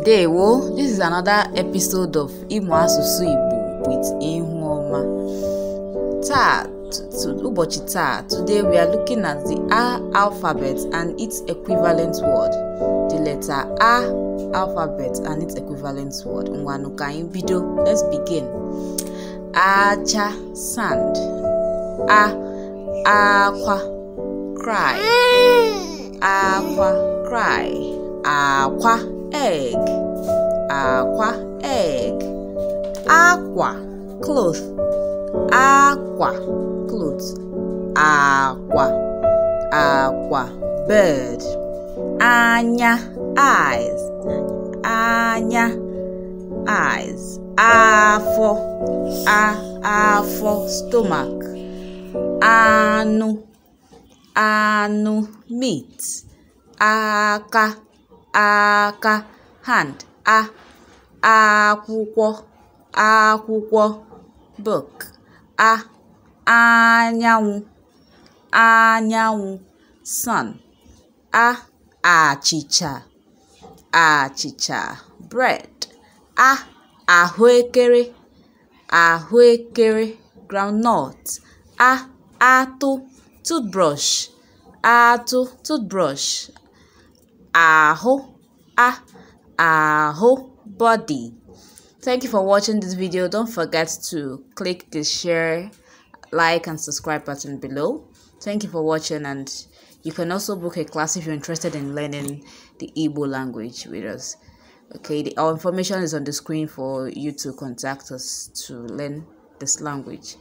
Today, Ndewo, this is another episode of Imo Asusu Igbo with Ihuoma. Ta, ubochi ta, today we are looking at the A alphabet and its equivalent word. The letter A alphabet and its equivalent word. Mwanukain bido. Let's begin. Acha, sand. A, aqua, cry. Mm. Aqua, cry. Aqua, egg akwa egg akwa cloth akwa cloth akwa akwa bird anya eyes anya eyes afọ a afọ stomach anụ anụ meat aka aka hand a akwụkwọ akwụkwọ book a anyanwụ anyanwụ sun a achịcha achịcha bread a ahụekere ahụekere groundnut a atụ toothbrush atụ toothbrush aho ah aho body thank you for watching this video don't forget to click the share like and subscribe button below thank you for watching and you can also book a class if you're interested in learning the Igbo language with us okay the, our information is on the screen for you to contact us to learn this language